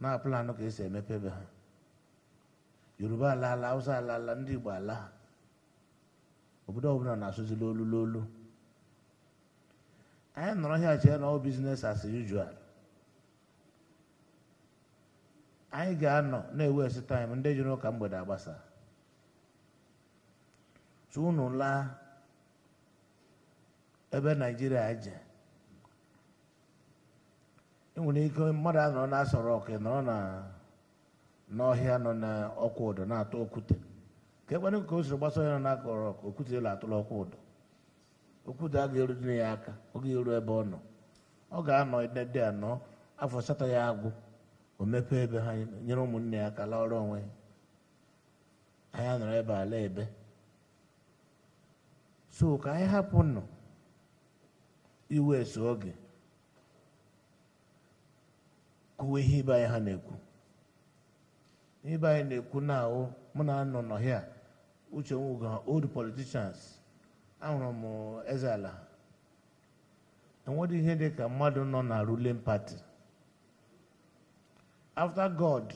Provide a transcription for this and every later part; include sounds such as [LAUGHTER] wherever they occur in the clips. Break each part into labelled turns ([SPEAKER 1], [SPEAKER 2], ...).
[SPEAKER 1] na plan ka esi emepebe ha yoruba alaala hausa alaala ndị igbo ala ha obodo ọbụla na asụzi olu lolu anyị nọrọ hịa chee na ọ biznes as usual anyị ga-anọ na esi taịm ndị jiri ụka mgbede agbasa tu unu laa ebe naijiria je enwere ike mmadụ anọ na-asọrọ ọkụ nọrọ n'ọhịa nọ n'ọkwa ụdọ na-atụ okwute ka ekpere ka o siri gbasa onye nọ n'akọrọ ọkụ okwute elu atụrụ ọkwa ụdọ okwute a ga dịna ya aka oge eru ebe ọ nọ ọ ga-anọ edede anọ afọ asatọ ya agwụ o mepee ebe ha nyere ụmụnne ya ka laa ọrụ onwe ya anyị anọrọ ebe ala ebe so ka anyị hapụ nọ iwe so oge kwuwe ihe ibe anyị ha na-ekwu ibe anyị na-ekwu na ahụ mụ na anọ n'ọhịa uche Nwuga old politicians ahụrụ m eze ala enwere ihe dị ka mmadụ nọ na ruling party afta god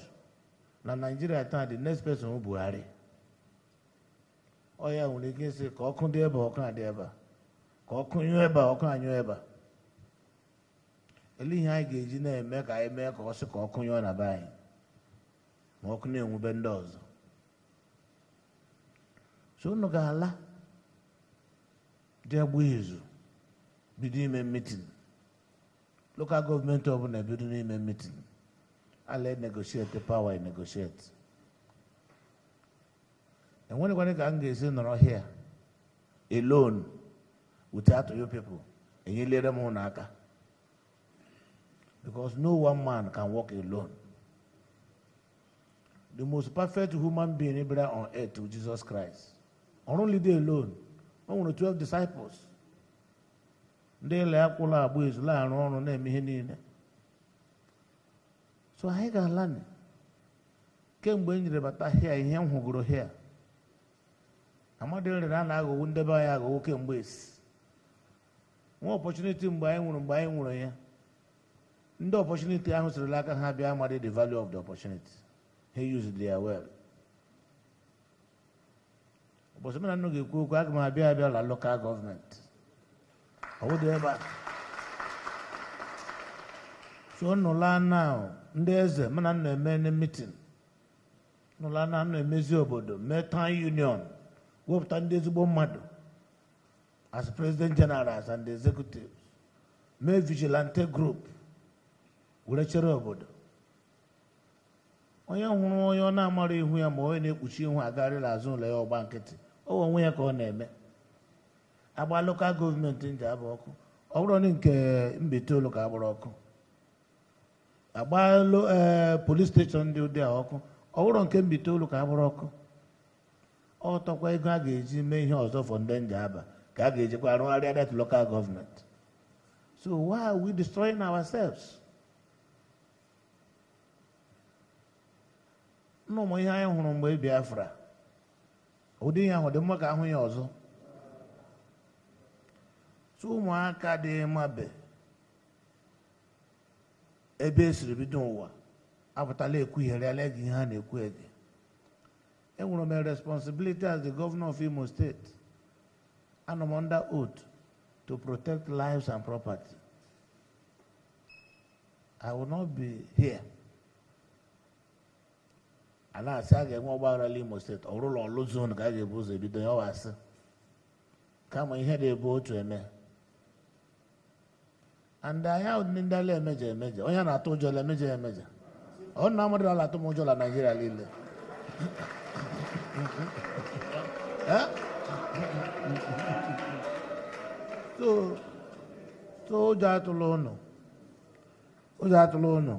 [SPEAKER 1] na naijiria taa the next person buhari ọ ya nwere ike ịsị ka ọkụ dị ebe ọkụ adị ebe ka ọkụ nyụọ ebe ọkụ anyụọ ebe ele ihe anyị ga-eji na-eme ka anyị mee ka ọ sị ka ọkụ nyụọ na be anyị ma ọkụ na-enwube ndị ọzọ so unu ga-ala dị agba izu bido ime mitin lokal gọọmenti ọbụla ebido n'ime mitin ala negosieti pawa ka m ga-esi nọrọ hia alone without you people enyelere m ụnụ Because no one man can walk alone. The most perfect human being ever on earth was Jesus Christ. Not only they alone, only 12 disciples. ndị ya akwụla agba ezula arụ ọrụ na-eme ihe niile so anyị ga-ala kemgbe e nyere bata hịa ihe m hụgoro hịa amadị rere a na-aghọwo ndebe anyị aghọwo kemgbe esi nwa ọpọchuniti mgbe anyị nwụrụ mgbe anyị nwụrụ ya ndị ọpọchuniti ahụ sirila aka ha bịa amadi the value of the opportunity He used their well ụbọchị mara nnụ ga-ekwu okwu aga m abịa abịa la lokal gọọmenti ọwụdị ebe a so nnụla na ndị eze mana nna eme na mitin nnụla na nna emezi obodo mee town union wepụta ndị ezigbo mmadụ as president general and executive mee vigilante group were chere obodo onye hụrụ onye ọ na-amara ihu ya ma onye na-ekpuchi ihu agarịla azụ ụlọ ya ọgba nkịtị o onwe ya ka ọ na-eme agba lokal gọọmenti ndị abụ ọkụ ọ bụrụ na nke Mbaise olu ka ọkụ agba eh, polis steshọn ndị ụdị a ọkụ ọ bụrụ nke Mbaise olu ka agbụrụ ọkụ ọ tọkwa ego a ga-eji mee ihe ọzọ fọ ndị ndị aba ka a ga-ejikwa arụgharịa that lokal gọọmenti so why are we destroying ourselves? n'ụmụ ihe anyị hụrụ mgbe Biafra ụdị ihe ahụ dị mma ka ahụ ya ọzọ tụ ụmụaka dị mabe ebe esiri bido ụwa apụtala ekwugharịala gị ihe a na-ekwu ege enwere m responsibility as the governor of Imo State anọ m under to protect lives and property I will not be here a na-asị a ga-enwe ọgbaghara imo steeti ọ bụrụla ọlụ zon ka a ga-ebu ụzọ ebido ya ọwasị kama ihe na-ebu otu eme and ahịa ndị ndị ala emeje emeje onye na-atụ ụjọ la emeje emeje ọ na amadụ ala atụ m ụjọ naijiria niile ụjọ atụla ụnụ ụjọ atụla ụnụ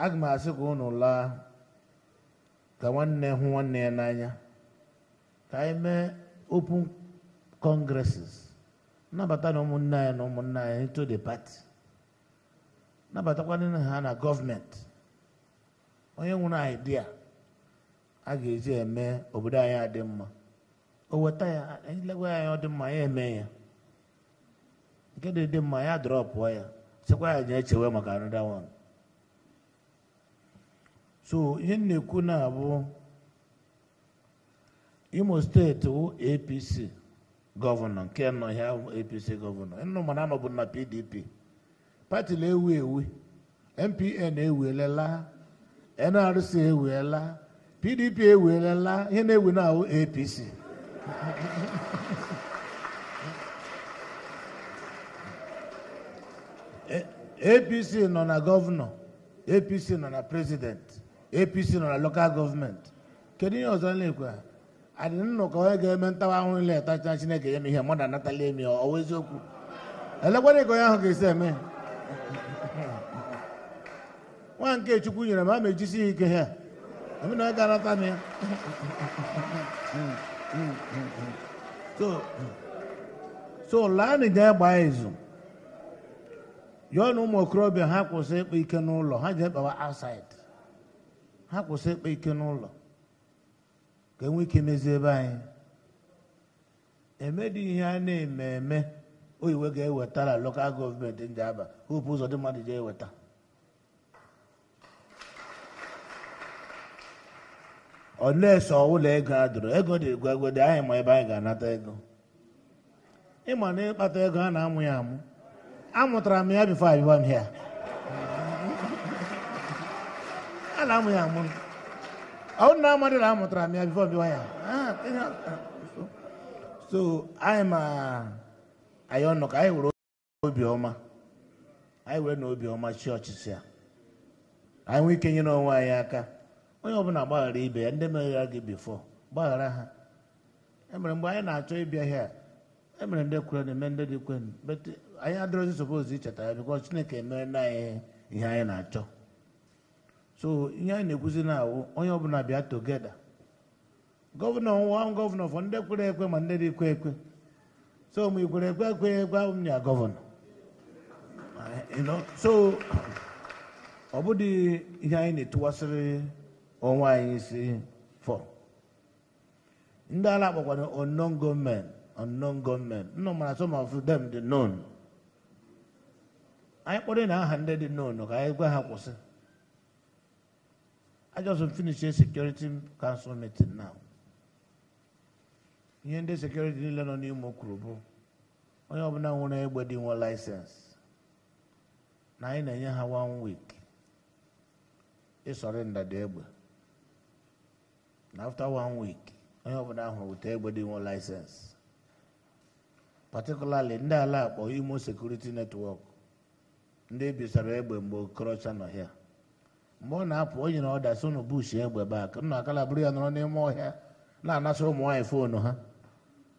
[SPEAKER 1] aga m asị ka unu laa ka nwanne hụ nwanne ya n'anya ka anyị mee open congresses nnabata na ụmụnne anyị na ụmụnne anyị into the party nabatakwana ha na gọọmenti onye nwere idea a ga-eji eme obodo anyị adị mma o weta ya anyị e legwa anyị ọ dị mma ya eme ya nke dị dị mma ya drọpụọ ya chekwa ya je echewe maka anụda one so ihe m na-ekwu na abụ imo steeti wụ apc gọvanọ nke nọ ahụ apc gọvanọ nụ mana anọbụ na pdp pati na-ewu ewu MPN ewelela nrc ewuela, pdp ewelela ihe na ewu na ahụ apc apc [LAUGHS] e, nọ na gọvanọ apc nọ na prezidenti apc nọ na lokal gọọmenti kedu ihe ọzọ na-ekwe adị nnọkọ onye ga-eme ntawa ahụhụ ile tacha chineke ya ma ihe mmadụ anatala emi ọwa eziokwu elekwana ka onye ahụ ga-esi eme nwa nke chukwu nyere m ama ejisi ya ike ha emena onye ga-anata m ya so laanị jee gbaa izu yọọ na ụmụ okorobịa ha kwụsị ịkpa ike n'ụlọ ha jee kpawa outside ha kwụsị ịkpa ike n'ụlọ ka enwe ike mezie ebe anyị dị e ihe a na-eme eme oyiwe ga-ewetara lokal gọọmenti ndị aba hopu ụzọ dị mmadụ ji eweta ọlesi ụlọ ego a dụrụ ego dị dị anyị ma ebe anyị ga-anata ego ịma na ịkpata ego a na-amụ ya amụ amụtara m ya bifo abịa m ala na-amụ ya amụ ọ nna amadị na amụtara m ya bifo bịwa so anyị ma anyị ọnụ ka anyị were obiọma anyị were na obiọma chi ọchịchị ya anyị nwee ike nyere onwe anyị aka onye ọbụla gbaghara ibe ya ndị meghara gị bifo gbaghara ha emere mgbe anyị na-achọ ịbịa hịa emere ndị kwere eme ndị dị kwenu anyị adịrọzi sopozi icheta ya bikọ Chineke emere na eh, ihe eh, anyị na-achọ so ihe anyị na-ekwuzi na awụ onye ọbụla bịa togeda gọvanọ nwa gọvanọ fọ ndị kwere ekwe ma ndị dị kwe ekwe so ma ikwere ekwe ekwe ekwe ahụ m ya gọvanọ so ọ bụghị ihe anyị na-etuwasịrị onwe anyị isi fọ ndị ala akpọkwara unknown gọọment unknown gọọment nnọ mara some of dem dị known anyị kpọrọ na aha ndị dị known ka anyị gwa ha kwụsị I just finished a security council meeting now. ihe ndị sekuriti niile nọ n'Imo kwuru bụ onye ọbụla nwere egbe dị nwe laisensi. na anyị na-enye ha wan week ịsọrenda dị egbe na afta wan week onye ọbụla ahụrụ weta egbe dị nwe laịsensị patikulali ndị ala akpọ Imo sekuriti netwọk ndị bisara egbe mgbe Okorocha nọ hịa. mgbe ọ na-apụ onye na ọda so na bush egbe baa nna akala bụrụ ya nọrọ n'ime ọhịa na anasị ụmụ nwaanyị foonu ha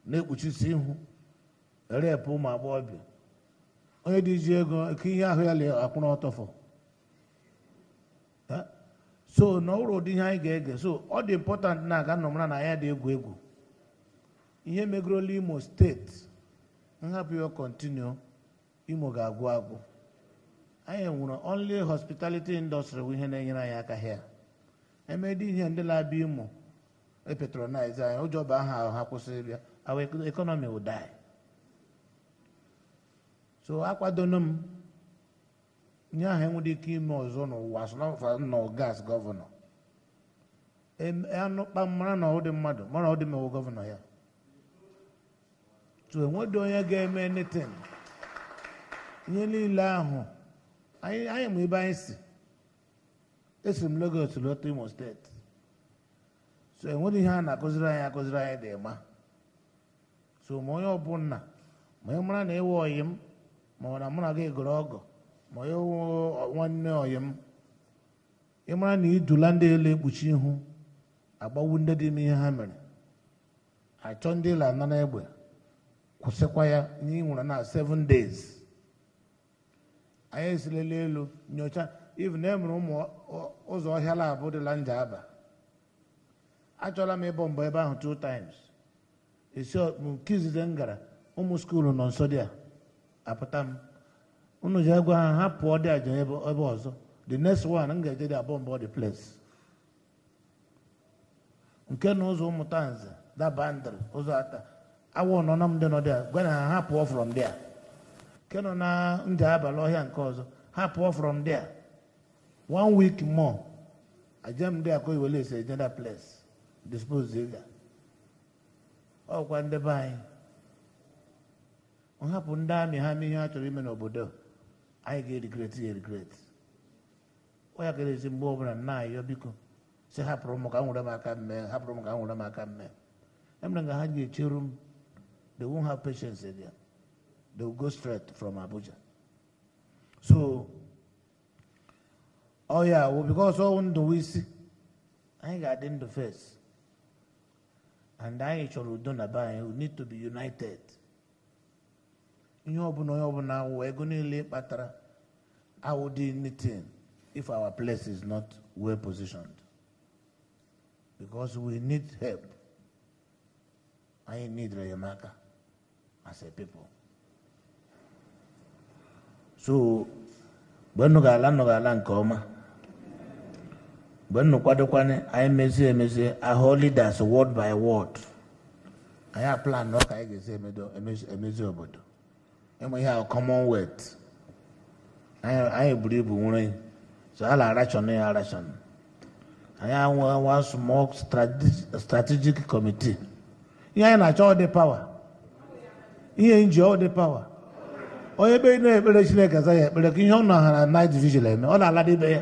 [SPEAKER 1] na-ekpuchisi ihu repụ ụmụ agbọghọbịa onye dị ji ego ka ihe ahụ ya akwụrụ ọtọfọ so na ọrụ ụdị ihe anyị ga-ege so ọ dị important na aga nnọmara na ya dị egwu egwu ihe megoro imo steeti nhapụ ya kontinu imo ga-agwụ agwụ anyị nwere only hospitality industry bụ ihe na-enyere anyị aka ha emedi ihe ndị na-abịa imo epetronize anyị ụjọ bụ aha ahụ ha kwụsịrị ya our economy will die so akwadono m nye aha enwere ike ime ọzọ n'ụwa sọnọ gas gọvanọ anụkpa mara na ọdị mmadụ mara ọdị mewo gọvanọ ya so enweghị onye ga-eme netin ihe niile ahụ anyị ma ebe anyị si esi m Legos lọta Imo steeti so enwere ihe a na-akụziri anyị akụziri anyị dị ma so ma onye ọbụla ma onye mara na ịwa ọyị m ma ọ na mụ na gị gụrụ ọgọ ma onye nwanne ọyị m ịmara na idula ndị elu ekpuchi ihu agbawu ndị dị ihe ha mere achọ ndị ịla na egbe kwụsịkwa ya n'inwere na 7 days anyị esilele elu nyocha even e mere ụmụ ụzọ ọhịa labụ dịla nja aba achọla m ịbọ mbọ ebe ahụ two times esi nke izize m gara ụmụ skuulu nọ nso dị a apụta m unu ji agwa ha ha pụọ dị aja ebe ọzọ the next one m ga-eje dị abọ mbọ the place nke na ụzọ ụmụta nze dabandr ụzọ ata awa nọ m dị nọ dị a gwa na ha ha pụọ from there nke nọ na ndị abalị ọhịa nke ọzọ ha pụọ from there one week more ajem dị akọ iwele ese another place dispose ga ọkwa ndị be anyị nhapụ ndị amị ha mee ihe ha chọrọ ime n'obodo anyị ga-erigret ya erigret ọ ya kere esi mgbe ọbụla nna ayọ biko si hapụrụ m ka m nwere m aka mmee hapụrụ m ka m nwere m aka mmee emere nga ha ji echeru m they won't have patience again They will go straight from Abuja. So, oh yeah, well, because all the we see, I got in the face. And I shall do not buy, we need to be united. You We're going to leave, ego I would do anything if our place is not well positioned because we need help I need Rayamaka as a people so mgbe nnụ ga-ala nnụ ga-ala nke ọma mgbe nnụ kwadokwana anyị mezie emezie ahụ leaders word by word anyị aplanụ ka anyị ga-esi emezi obodo ịmụ ihe ahụ commonwealth anyị buru ibu nwere so a na-arachọn ya arachọn anyị anwa small strategic committee ihe anyị na-achọ ọ dị pawa ihe nji ọ dị pawa onye ebe na-ekpere chineke aza ya ekpere ka ihe ọ nọ ha na night vigil eme ọ na-ala ibe ya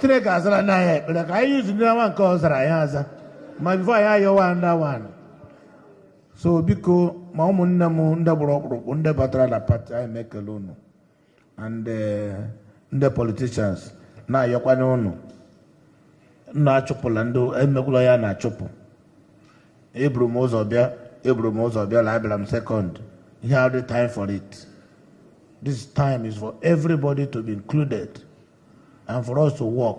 [SPEAKER 1] chineke azara ndị ahịa ekpere ka anyị yuzu ndị awa nke ọ zara ya aza ma bifo anyị ayọwa nda wan so biko ma ụmụnne m ndị gburu ọkpụrụkpụ ndị batara na pati anyị mekele unu and eh, ndị politicians na-ayọkwanye unu na-achụpụla ndị emekwụla ya na-achụpụ eburu m ụzọ bịa eburu m ụzọ bịa abịara m sekọnd ihe adị time for it this time is for everybody to be included and for us to work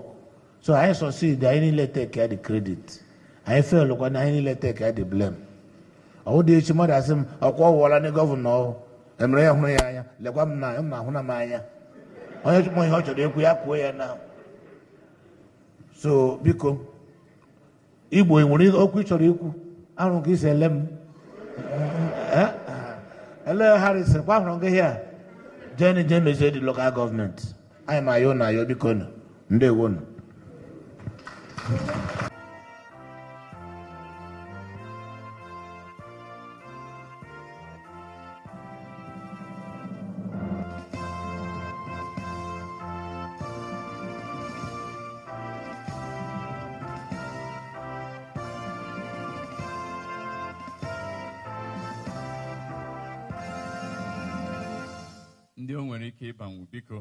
[SPEAKER 1] so anyị succeed anyị niile take ya the credit anyị fail kwa na anyị niile take ya the blame ọwụ dị echi mmadụ asị m ọkwa ọwụwala ndị gọvanọ emere ya hụrụ ya anya lekwa m na m na-ahụ na m anya onye chụpụ ihe ọ chọrọ ekwu ya kwuo ya na so biko igbo nwere okwu ị chọrọ ikwu arụ ka isi ele m eh, eh, eh. ele harrison kwa hụrụ gị hịa jeni je mezie dị lokal gọọmenti anyị ma ayo na ayo biko nụ ndewonu ndị o nwere ike ịbanwu biko